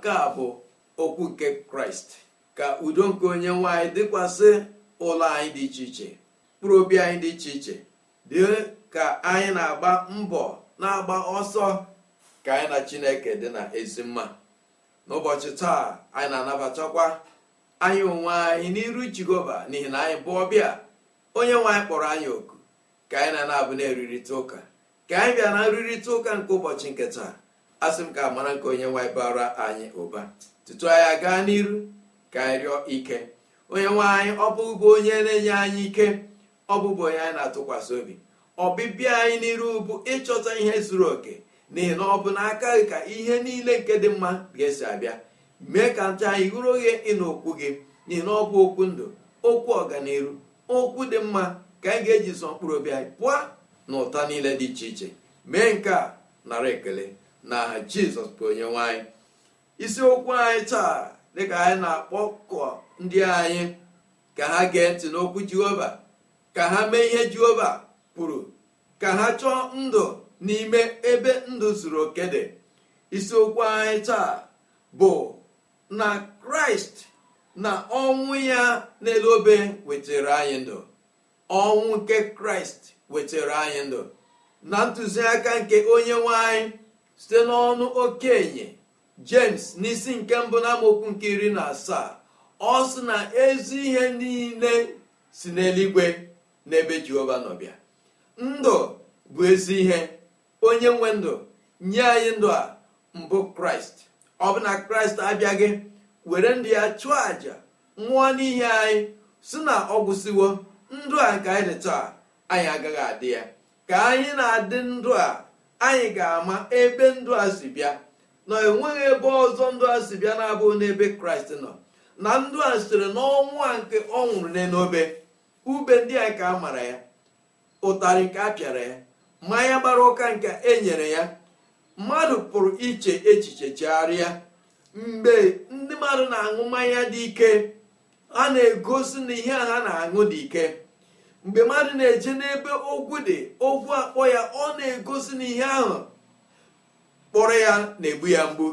nke a bụ okwu nke kraịst ka udo nke onye nwe anyị dịkwasị ụlọ anyị dị iche iche mkpụrụ obi anyị dị iche iche dị ka anyị na-agba mbọ na-agba ọsọ ka anyị na chineke dị na ezi mma n'ụbọchị taa anyị na-anabatakwa anyị onwe anyị n'iru jehova n'ihi na anyị bụ ọbịa onye nwe anyị kpọrọ anyị oku ka anyị na-anabụ na-erurịta ụka ka anyị bịa na nrụrịta ụka nke ụbọchị nke taa asị m ka amara nke onye nwaanyị bara anyị ụba tutu anyị gaa n'iru ka anyị rịọ ike onye nwaanyị ọ bụbụ onye na-enye anyị ike ọ bụbụ onye anyị na-atụkwasị obi ọbịbịa anyị n'iru bụ ịchọta ihe zuru oke n'ihi na ọ bụ n'aka gị ka ihe niile nke dị mma ga-esi abịa mee ka ncha anyị hụrụ oghe ịna okwu gị n'ihi na ọ bụ okwu ndụ okwu ọganiru okwu dị mma ka anyị ga-eji zọ mkpụrụ obi anyị pụọ na ụta niile dị iche iche mee nke a nara ekele na jizọs bụ onye anyị isiokwu anyị taa dịka anyị na-akpọkọ ndị anyị ka ha gee ntị n'okwu jehova ka ha mee ihe jehova kwuru ka ha chọọ ndụ n'ime ebe ndụ zuru oke dị isiokwu anyị taa bụ na kraịst na ọnwụ ya n'elu obe wetara anyị ndụ ọnwụ nke kraịst wetara anyị ndụ na ntụziaka nke onye nwanyị. site n'ọnụ okenye james n'isi nke mbụ na nke iri na asaa ọ sị na ezu ihe niile si n'eluigwe n'ebe jehova nọbịa ndụ bụ ezi ihe onye nwe ndụ nye anyị ndụ a mbụ kraịst ọ bụ na kraịst abịaghị were ndụ ya chụọ àjà nwụọ n'ihe anyị si na ọ gwụsịwo ndụ a nke anyị dị taa anyị agaghị adị ya ka anyị na-adị ndụ a anyị ga-ama ebe ndụ a bịa na enweghị ebe ọzọ ndụ a bịa na-abụghị n'ebe kraịst nọ na ndụ a sitere n'ọnwụ a nke ọ nwụrụ n'enobe ube ndị a ka a mara ya ụtarị nke a pịara ya mmanya gbara ụka nke e nyere ya mmadụ pụrụ iche echiche chegharịa mgbe ndị mmadụ na-aṅụ mmanya dị ike a na-egosi na ihe a ha na-aṅụ dị ike mgbe mmadụ na-eje n'ebe ogwu dị ogwu akpọ ya ọ na-egosi na ihe ahụ kpọrọ ya na-egbu ya mgbu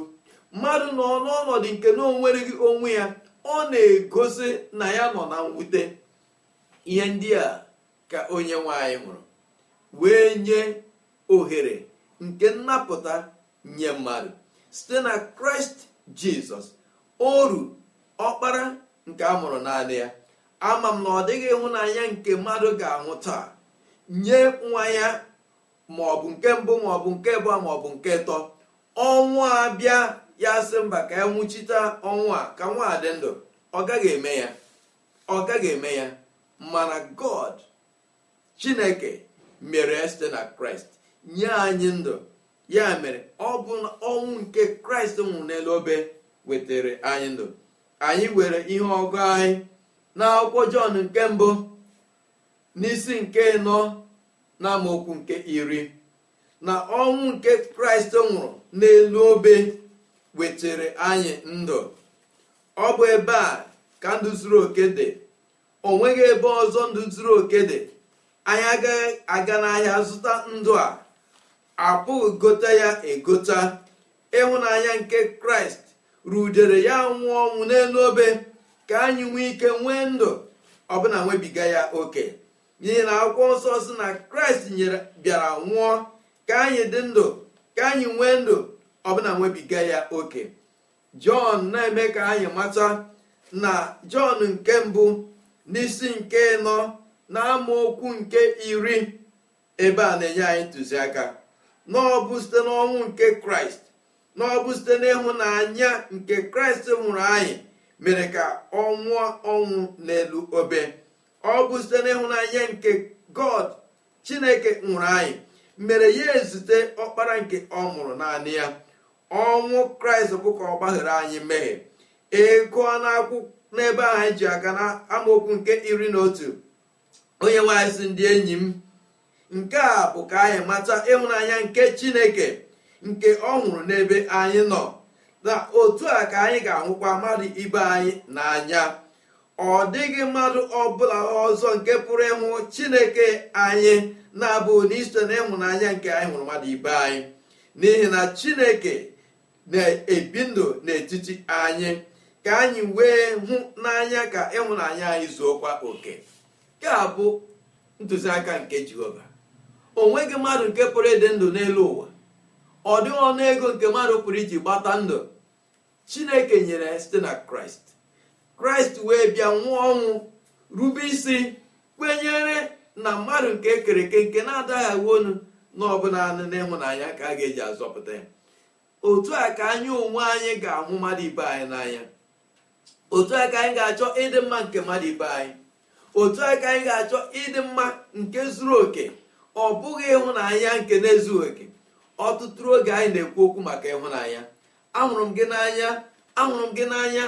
mmadụ nọ n'ọnọdụ nke na onwereghị onwe ya ọ na-egosi na ya nọ na mwute ihe ndị a ka onye nwanyị nwụrụ wee nye ohere nke nnapụta nye mmadụ site na kraịst jizọs oru ọkpara nke a mụrụ naanị ya ama m na ọ dịghị ịhụnanya nke mmadụ ga-anwụ taa nye nwa ya maọbụ nke mbụ maọbụ nke abụọ maọbụ nke ịtọ ọnwụ abịa ya sị mba ka ya e nwụchite ọnwụ a ka nwa dị ndụ ọ gaghị eme ya ọ gaghị eme ya mana god chineke mere site na kraịst nye anyị ndụ ya mere ọ bụ na ọnwụ nke kraịst nwụrụ n'elu obe wetara anyị ndụ anyị were ihe ọgụ anyị n'akwụkwọ jọn nke mbụ n'isi nke nọ na amaokwu nke iri na ọnwụ nke kraịst nwụrụ n'elu obe wetara anyị ndụ ọ bụ ebe a ka ndụ zuru oke dị o nweghị ebe ọzọ ndụ zuru oke dị anyị agaghị aga n'ahịa zụta ndụ a apụghị gote ya egota ịhụnanya nke kraịst rudere ya nwụọ ọnwụ n'elu obe ka anyị nwee ike nwee ndụ ọbụna nwebiga ya oke n'ihi na akwụkwọ nsọ si na kraịst nyere bịara nwụọ ka anyị dị ndụ ka anyị nwee ndụ ọbụna nwebiga ya oke jọn na-eme ka anyị mata na jọn nke mbụ n'isi nke nọ na okwu nke iri ebe a na-enye anyị ntụziaka na ọ bụ site n'ọnwụ nke kraịst na ọ bụ site n'ịhụnanya nke kraịst nwụrụ anyị mere ka ọ nwụọ ọnwụ n'elu obe ọ bụ site n'ịhụnanya nke god chineke nwụrụ anyị mere ya ezute ọkpara nke ọ mụrụ naanị ya ọnwụ kraịst bụ ka ọ gbaghara anyị mmehie ego n'ebe ahụ anyị ji aga na amaokwu nke iri na otu onye nwanyị ndị enyi m nke a bụ ka anyị mata ịhụnanya nke chineke nke ọ nwụrụ n'ebe anyị nọ na otu a ka anyị ga-ahụkwa mmadụ ibe anyị n'anya ọ dịghị mmadụ ọbụla ọzọ nke pụrụ ịhụ chineke anyị na-abụ n'isite na ịhụnanya nke anyị hụrụ mmadụ ibe anyị n'ihi na chineke na-ebi ndụ n'etiti anyị ka anyị wee hụ n'anya ka ịhụnanya anyị zuokwa oke nke a bụ ntụziaka nke jehova o nweghị mmadụ nke pụrụ ịdị ndụ n'elu ụwa ọ dịghị ọnụ ego nke mmadụ pụrụ iji gbata ndụ chineke nyere ya site na kraịst kraịst wee bịa nwụọ ọnwụ rube isi kwenyere na mmadụ nke ekere eke nke na-adaghị agwa onu na ọbụla naanị n'ịhụnanya ka a ga-eji azọpụta ya otu a ka anyị onwe anyị ga-ahụ mmadụ ibe anyị n'anya otu a ka anyị ga-achọ ịdị mma nke mmadụ ibe anyị otu a ka anyị ga-achọ ịdị mma nke zuru oke ọ bụghị ịhụnanya nke na-ezughị oke ọtụtụ oge anyị na-ekwu okwu maka ịhụnanya ahụrụ m gị n'anya ahụrụ m gị n'anya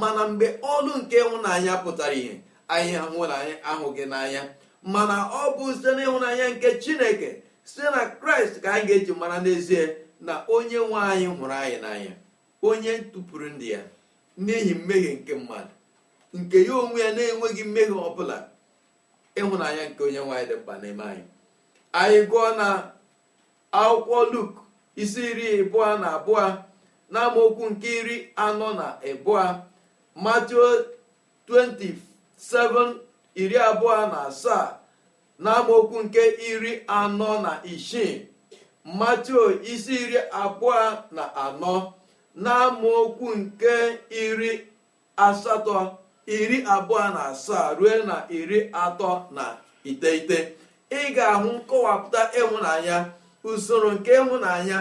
mana mgbe ọlụ nke ịhụnanya pụtara ihe anyị ahụnanya ahụ gị n'anya mana ọ bụ site n'ịhụnanya nke chineke site na kraịst ka anyị ga-eji mara n'ezie na onye nwe anyị hụrụ anyị n'anya onye tụpụrụ ndị ya n'ihi mmehie nke mmadụ nke ya onwe ya na-enweghị mmehie bụla ịhụnanya nke onye nwaanyị dị mkpa n'ime anyị anyị gụọ na akwụkwọ luk isi iri abụọ na abụọ n'amaokwu nke iri anọ na abụọ Matthew 27 iri abụọ na asaa n'amaokwu nke iri anọ na isii Matthew isi iri abụọ na anọ n'amaokwu nke iri asatọ iri abụọ na asaa ruo na iri atọ na iteghete ị ga-ahụ nkọwapụta ịhụnanya usoro nke ịhụnanya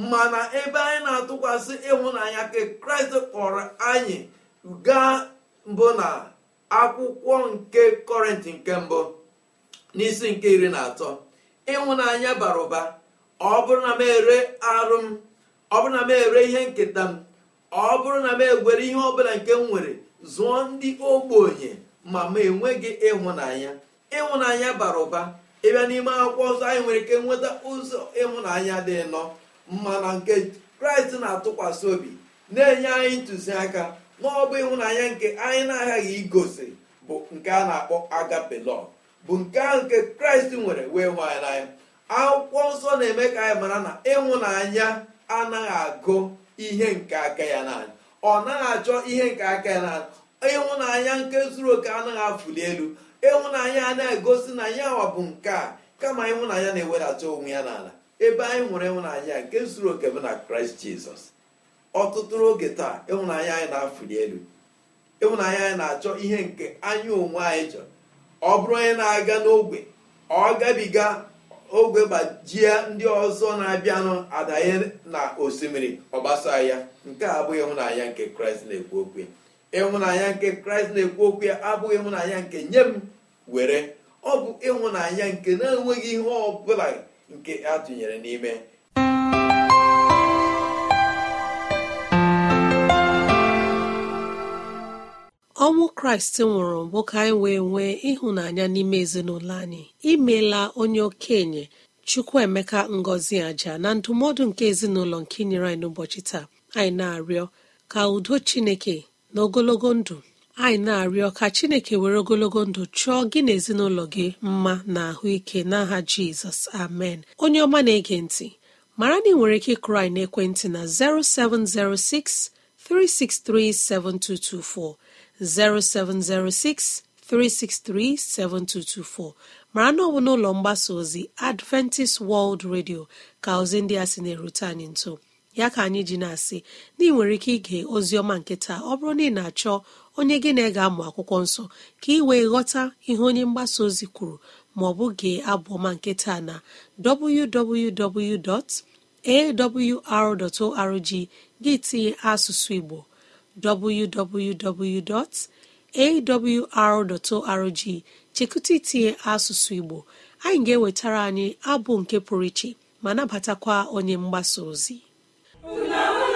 mana ebe anyị na-atụkwasị ịhụnanya ka kraịst kpọrọ anyị gaa mbụ na akwụkwọ nke kọrịntị nke mbụ n'isi nke iri na atọ ịhụnanya bara ụba ọ bụrụ na m ere arụ m ọ bụrụ na m ere ihe nketa m ọ bụrụ na m egwere ihe ọbụla nke m nwere zụọ ndị ogbenye ma m enweghị ịhụnanya ịhụnanya bara ụba ịbịa n'ime akwụkwọ ọzọ anyị nwere ike nweta ụzọ ịhụnanya dị nọ mana nke kraịst na-atụkwasị obi na-enye anyị ntụziaka n'ọbụ ịhụnanya nke anyị na-aghaghị igosi bụ nke a na-akpọ agapelọ bụ nke ahụ nke kraịst nwere wee hụ anyị n'anya akwụkwọ nsọ na-eme ka anyị mara na ịhụnanya anaghị agụ ihe nke aka ya naanị ọ naghị achọ ihe nke aka ya naanị ịhụnanya nke zuru oke anaghị afụli elu ịhụnanya anaghị egosi na ya bụ nke a kama ịhụnanya na-ewedata onwe ya n'ala ebe anyị hụrụ ịhụnanya nke zuru oke bụ na kraịst jizọs ọtụtụ oge taa ịhụnanya anyị na-afụli elu ịhụnanya anyị na-achọ ihe nke anya onwe anyị chọrọ ọ bụrụ onye na-aga n'ogbe ọ gabiga ogwe gbajie ndị ọzọ na-abịanụ adanye na osimiri ọgbasa ya nke a abụghị ịhụnanya nke kraịst na-ekwu okwu ya ịhụnanya nke kraịst na-ekwu okwu ya abụghị ịhụnanya nke nye m were ọ bụ ịhụnanya nke na-enweghị ihe ọ bụla nke a n'ime ọnwụ kraịst nwụrụ bụ ka anyị wee nwee ịhụnanya n'ime ezinụlọ anyị imela onye okenye emeka ngozi aja na ndụmọdụ nke ezinụlọ nke nyere anyị n'ụbọchị taa anyị na-arịọ ka udo chineke na ogologo ndụ anyị na-arịọ ka chineke were ogologo ndụ chụọ gị na ezinụlọ gị mma na ahụike n'aha jizọs amen onye ọma na-ege ntị mara na ị nwere ike krai anyị n'ekwentị na 0706 363 7224 0706 363 7224 mara na ọ bụ n'ụlọ mgbasa ozi Adventist World Radio ka ozi ndị a na-erute anyị nso ya ka anyị ji na-asị na ị nwere ike ige oziọma nketa ọ bụrụ na ị na-achọ onye gị na ị ga-amụ akwụkwọ nsọ ka ị wee ghọta ihe onye mgbasa ozi kwuru ma ọ bụ gee abụọma ọma nkịta na www.awr.org gị tinye asụsụ Igbo www.awr.org chekụta itinye asụsụ Igbo anyị ga-ewetara anyị abụ nke pụrụ iche ma nabatakwa onye mgbasa ozi Una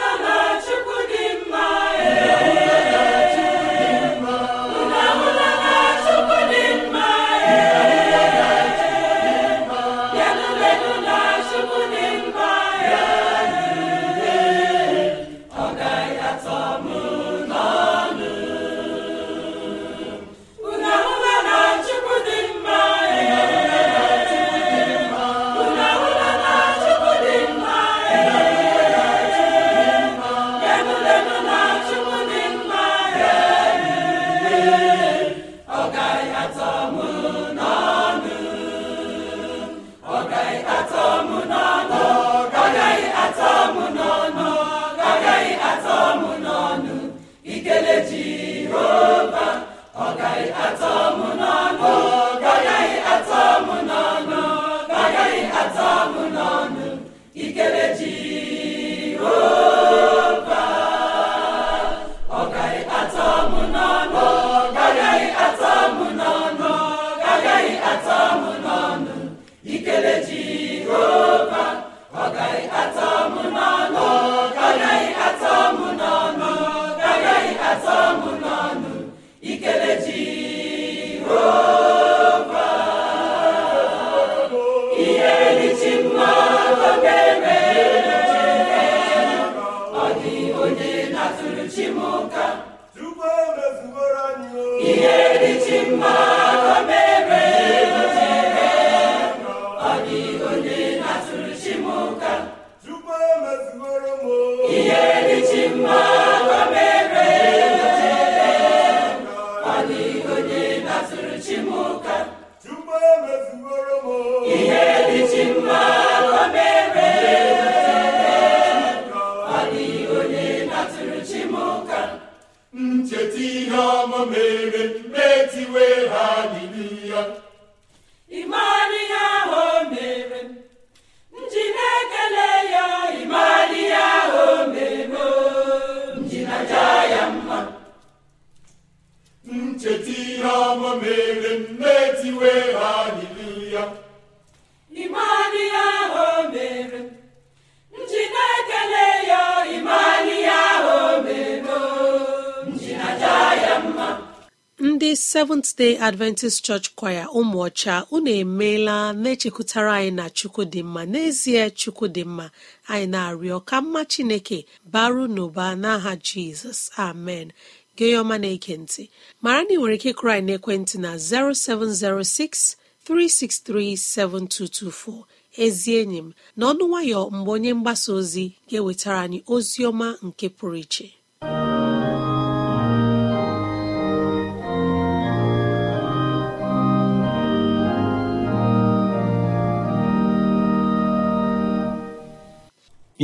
Day Adventist Church Choir ụmụọcha unu emeela na-echekwutara anyị na chukwu dị mma n'ezie chukwu dị mma anyị na-arịọ ka mma Chineke baru n'ụba n'aha Jizọs amen gị na ekentị ntị mara na nwere ike kụrụ anyị n'ekwentị na 0706 363 7224 ezi enyi m na ọnụ nwayọ mgbe onye mgbasa ozi ga-ewetara anyị ozi ọma nke pụrụ iche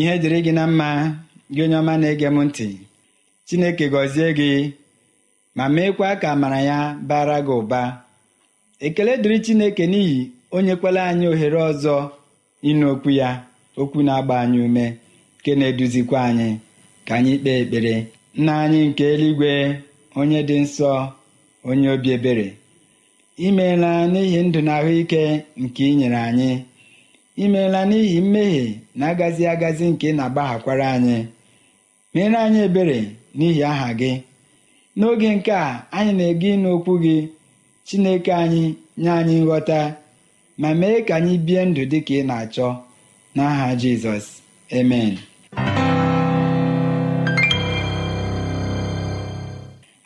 ihe dịrị gị na mma gị onye ọma na-ege m ntị Chineke gọzie gị ma meekwa ka amara ya bara gị ụba ekele dịrị Chineke n'ihi onye kwela anyị ohere ọzọ ịnụ okwu ya okwu na-agba anyị ume nke na-eduzikwa anyị ka anyị kpee ekpere nna anyị nke eluigwe onye dị nsọ onye obi ebere imeela n'ihi ndụ na ahụike nke ị nyere anyị imeela n'ihi mmehie na-agazi agazi nke ị na-agbaghakwara anyị mere anyị ebere n'ihi aha gị n'oge nke a anyị na-ege ịnụ okwu gị Chineke anyị nye anyị nghọta ma mee ka anyị bie ndụ dị ka ị na-achọ n'aha Jizọs emen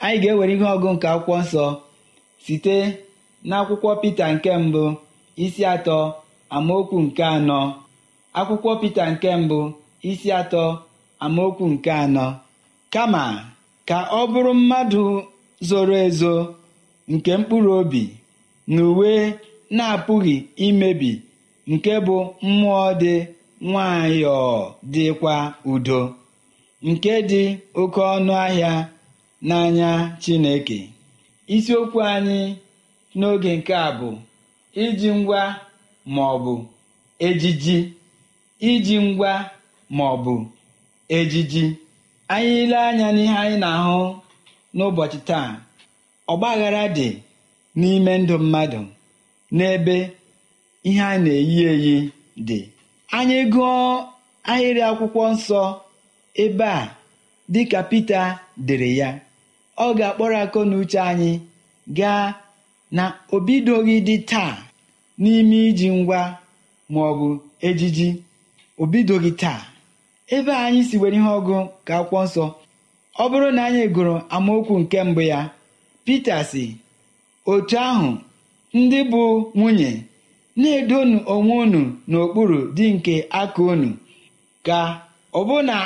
anyị ga-ewere ihe ọgụ nke akwụkwọ nsọ site n'akwụkwọ Pita nke mbụ isi atọ amaokwu nke anọ akwụkwọ Pita nke mbụ isi atọ amaokwu nke anọ kama ka ọ bụrụ mmadụ zoro ezo nke mkpụrụ obi na uwe na-apụghị imebi nke bụ mmụọ dị nwayọọ dịkwa udo nke dị oke ọnụ ahịa n'anya Chineke isiokwu anyị n'oge nke a bụ iji ngwa ma ọ bụ ejiji iji ngwa ma ọ bụ ejiji anyị ile anya n'ihe anyị na-ahụ n'ụbọchị taa ọgbaghara dị n'ime ndụ mmadụ n'ebe ihe a na-eyi eyi dị anyị gụọ ahịrị akwụkwọ nsọ ebe a dịka Pita dere ya ọ ga-akpọrọ akọ na uche anyị gaa na obidoghị dị taa n'ime iji ngwa ma ọ bụ ejiji o bidoghị taa ebe anyị si were ihe ọgụ ka akwụkwọ nsọ ọ bụrụ na anyị gụrụ amaokwu nke mbụ ya Pita si otu ahụ ndị bụ nwunye na-edonu onwe unu n'okpuru dị nke aka unu ka ọbụna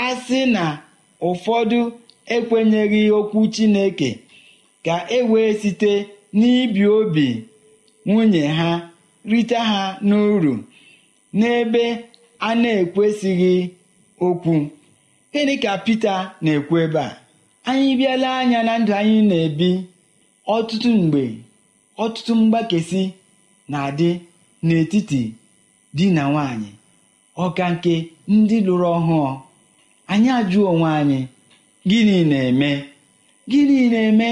a sị na ụfọdụ ekwenyeghị okwu Chineke ka e site n'ibi obi nwunye ha rite ha n'uru n'ebe a na-ekwesịghị okwu gịnị ka Pita na-ekwu ebe a anyị bịala anya na ndụ anyị na-ebi ọtụtụ mgbe ọtụtụ mgbakesi na-adị n'etiti di na nwanyị ọka nke ndị lụrụ ọhụụ anyị ajụọ onwe anyị gịnị na-eme gịnị na-eme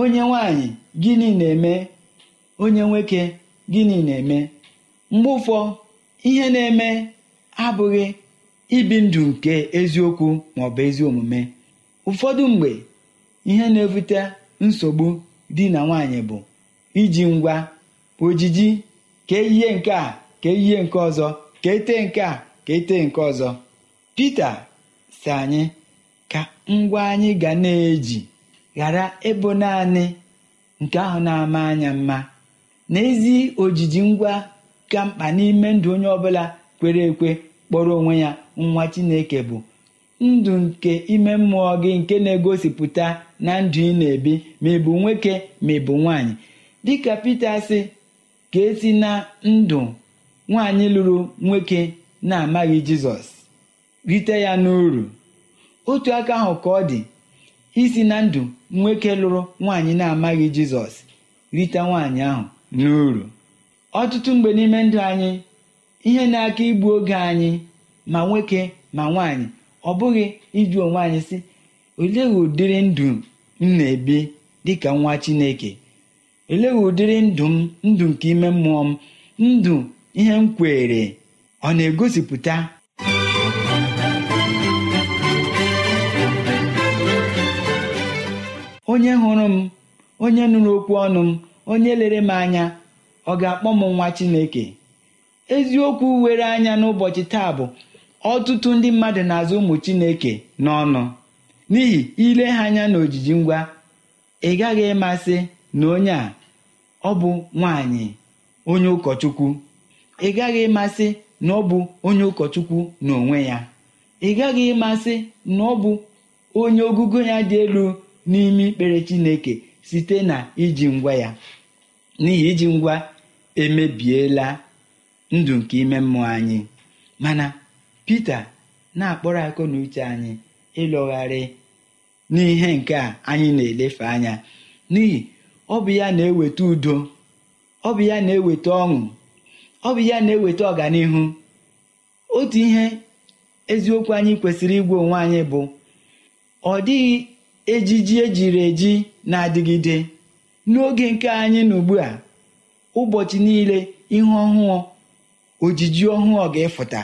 onye nwanyị gịnị na-eme onye nwoke gịnị na-eme mgbe ụfọ ihe na-eme abụghị ibi ndụ nke eziokwu bụ ezi omume ụfọdụ mgbe ihe na-ebute nsogbu dị na nwaanyị bụ iji ngwa ojiji ka eyie nke a ka eyie nke ọzọ ka ete nke a ka ete nke ọzọ Pita si anyị ka ngwa anyị ga na-eji ghara ịbụ naanị nke ahụ na-ama anya mma N'ezi ojiji ngwa ka mkpa n'ime ndụ onye ọbụla kwere ekwe kpọrọ onwe ya nwa chineke bụ ndụ nke ime mmụọ gị nke na-egosipụta na ndụ ị na-ebi ma ị bụ nwoke ma ị bụ nwaanyị dịka Pita sị ka esi na ndụ nwaanyị lụrụ nwoke na-amaghị Jizọs rite ya n'uru otu aka ahụ ka ọ dị isi na ndụ nwoke lụrụ nwaanyị na-amaghị Jizọs rite nwaanyị ahụ n'uru ọtụtụ mgbe n'ime ndụ anyị ihe na-aka igbu oge anyị ma nwoke ma nwaanyị ọ bụghị ịjụ onwe anyị si olee ụdịrị ndụ m na-ebi dịka nwa Chineke olee ụdịrị ndụ m ndụ nke ime mmụọ m ndụ ihe m kwere ọ na-egosipụta onye hụrụ m onye nụrụ okwu ọnụ m onye lere m anya ọ ga-akpọ m nwa Chineke eziokwu were anya n'ụbọchị taa bụ ọtụtụ ndị mmadụ na-azụ ụmụ Chineke n'ọnụ n'ihi ile ha anya na ojiji ngwa ị gaghị ịmasị na onye a ọ bụ nwanyị onye ụkọchukwu ị gaghị ịmasị na ọ bụ onye ụkọchukwu n'onwe ya ị gaghị ịmasị na ọ bụ onye ogugo ya dị elu n'ime ikpere Chineke site na iji ngwa ya n'ihi iji ngwa emebiela ndụ nke ime mmụọ anyị mana Pita na-akpọrọ akọ na uche anyị ịlọgharị n'ihe nke a anyị na-elefe anya n'ihi ọ bụ ya na-eweta udo ọ bụ ya na-eweta ọṅụ ọ bụ ya na-eweta ọganihu otu ihe eziokwu anyị kwesịrị igwe onwe anyị bụ ọ dịghị ejiji ejiri eji na-adịgide n'oge nke anyị na ugbu a ụbọchị niile ihe ọhụụ ojiji ọhụụ ga-efụta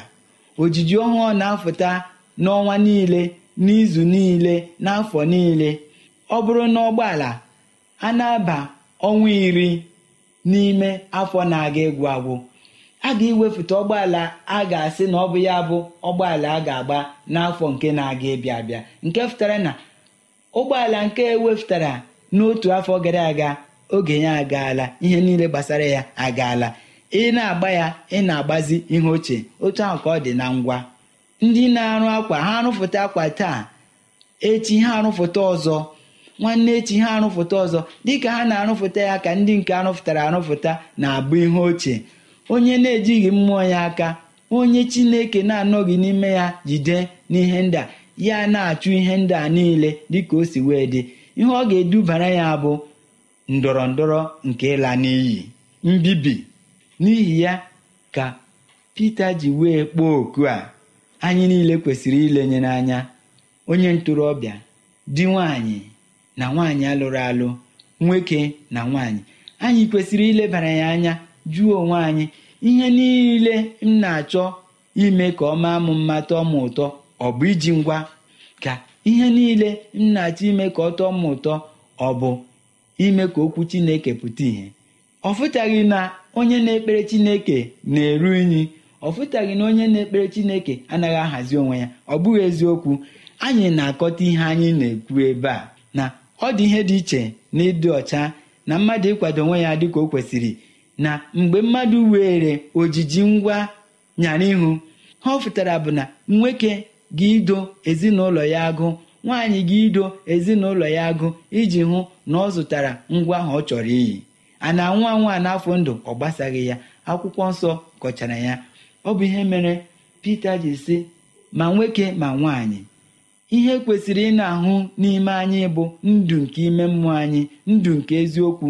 ojiji ọhụụ na-afụta n'ọnwa niile n'izu niile n'afọ niile ọ bụrụ na ụgbọala a na-aba ọnwa iri n'ime afọ na-aga egwu agwụ a ga-ewefụta ụgbọala a ga-asị na ọ bụ ya bụ ụgbọala a ga-agba n'afọ nke na-aga ịbịa abịa nke fụtara na ụgbọala nke ewepụtara n'otu afọ gara aga oge ya agaala ihe niile gbasara ya agaala ị na-agba ya ị na-agbazi ihe ochie otu ahụ ka ọ dị na ngwa ndị na-arụ akwa ha arụfụta akwa taa echi ha arụfụta ọzọ nwanne echi ha arụfụta ọzọ dịka ha na-arụfụta ya ka ndị nke arụfụtara arụfụta na-abụ ihe ochie onye na-ejighị mmụọ ya aka onye chineke na-anọghị n'ime ya jide n'ihe ndị a ya na-achụ ihe ndị a niile dịka o si wee dị ihe ọ ga-edubara ya bụ ndọrọ ndọrọ nke ịla n'iyi mbibi n'ihi ya ka Pita ji wee kpọọ oku a anyị niile kwesịrị ilenye n'anya onye ntorobịa di nwanyị na nwaanyị alụrụ alụ nwoke na nwanyị anyị kwesịrị ilebara ya anya jụọ onwe anyị ihe niile m na-achọ ime ka ọ maa m mma tọọ m ụtọ ọ bụ iji ngwa ka ihe niile m na-achọ ime ka ọ tọọ m ụtọ ọ bụ ime ka okwu chineke pụta ìhè ọ fụtaghị na onye na-ekpere chineke na-eru unyi ọ fụtaghị na onye na-ekpere chineke anaghị ahazi onwe ya ọ bụghị eziokwu anyị na-akọta ihe anyị na-ekwu ebe a na ọ dị ihe dị iche na ịdị ọcha na mmadụ ịkwado onwe ya dịka o kwesịrị na mgbe mmadụ were ojiji ngwa nyara ihu ha ọ fụtara bụ na nwoke gị ido ezinụlọ ya agụ nwaanyị gị ido ezinụlọ ya agụ iji hụ na ọ zụtara ngwa ahụ ọ chọrọ iyi a na nwa a n'afọ ndụ ọ gbasaghị ya akwụkwọ nsọ kọchara ya ọ bụ ihe mere Pita ji sị ma nwoke ma nwaanyị ihe kwesịrị ị na-ahụ n'ime anyị bụ ndụ nke ime mmụọ anyị ndụ nke eziokwu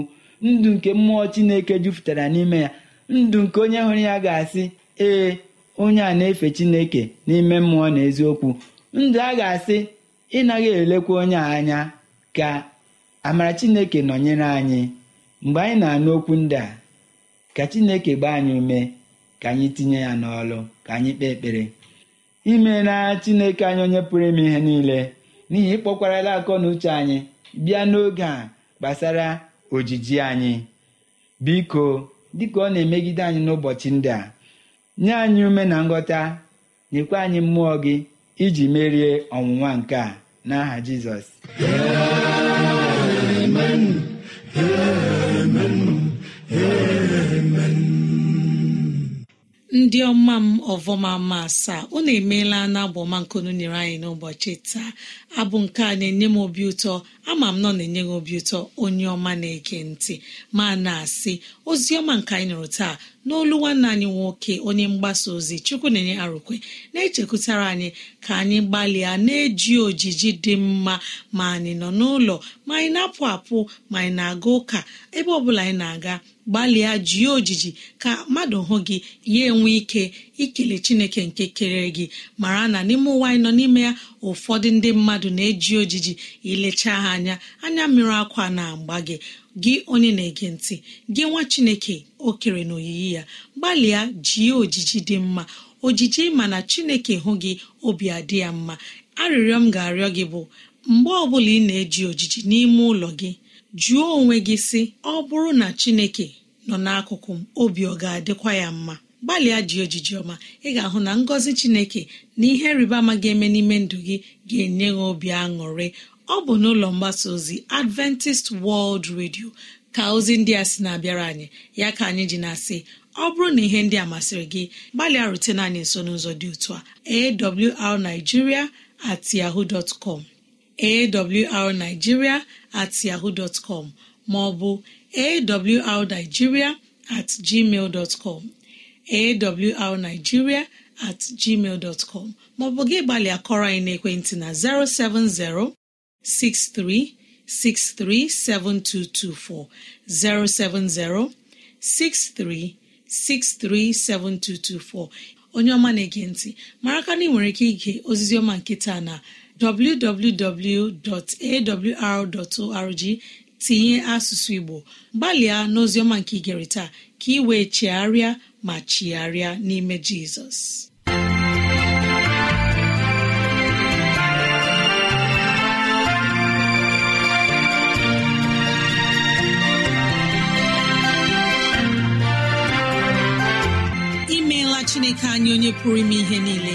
ndụ nke mmụọ Chineke jupụtara n'ime ya ndụ nke onye hụrụ ya ga-asị ee onye a na-efe chineke n'ime mmụọ na eziokwu ndụ a ga-asị ịnaghị elekwa onye a anya ka amara chineke nọnyere anyị mgbe anyị na-anụ okwu ndị a ka chineke gbaa anyị ume ka anyị tinye ya n'ọlụ ka anyị kpee ekpere imela chineke anyị onye pụrụ ime ihe niile n'ihi ịkpọkwarala akọ na uche anyị bịa n'oge a gbasara ojiji anyị biko dịka ọ na-emegide anyị n'ụbọchị ndị a nye anyị ume na nghọta nyekwa anyị mmụọ gị iji merie ọwụwa nke a n'aha jizọs ndị ọma m ọvọma ma asaa unu emeela na ọma nkunu nyere anyị n'ụbọchị taa abụ nke a na-enye m obi ụtọ ama m nọ na-enye gị obi ụtọ onye ọma na-ege ntị ma na-asị ozi ọma nke anyị nụrụ taa n'olu nwanne anyị nwoke onye mgbasa ozi chukwu na-enye arụkwe na-echekwutara anyị ka anyị gbalịa na-eji ojiji dị mma ma anyị nọ n'ụlọ ma anyị na-apụ apụ ma anyị na-aga ụka ebe ọ bụla anyị na-aga gbalịa jie ojiji ka mmadụ hụ gị ya enwe ike ikele chineke nke kere gị mara na n'ime ụwa anyị nọ n'ime ya ụfọdụ ndị mmadụ na-eji ojiji ilechaa ha anya anya mmiri akwa na-agba gị gị onye na-ege ntị gị nwa chineke okere kere na oyiyi ya gbalịa jie ojiji dị mma ojiji mana chineke hụ gị obi adị ya mma arịrịọ m ga-arịọ gị bụ mgbe ọbụla ị na-eji ojiji n'ime ụlọ gị jụọ onwe gị sị ọ bụrụ na chineke nọ n'akụkụ m obi ọ ga-adịkwa ya mma gbalịa ji ojiji ọma ị ga-ahụ na ngọzi chineke na ihe rịba ama ga-eme n'ime ndụ gị ga-enye gị obi aṅụrị ọ bụ n'ụlọ mgbasa ozi adventist world radio ka ozi ndị a si na-abịara anyị ya ka anyị ji na-asị ọ bụrụ na ihe ndị a masịrị gị gbalịa rutena anyị nso n'ụzọ dị otu a arigiria at yahoo dot com at yahoo dot com ma at gmail dot awrnigeria at gmail dọtcọm maọbụ gị gbalịa kọrọ anyị n'ekwentị na 070 63637224 070 7224 onye ọma na-ege ntị mara ka na ị nwere ike ige ozizi ọma nkịta na www.awr.org tinye asụsụ Igbo gbalịa n'oziọma nke igere ka ị wee chigharịa ma chigharịa n'ime jizọs imeela chineke anyị onye pụrụ ime ihe niile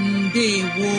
ndewo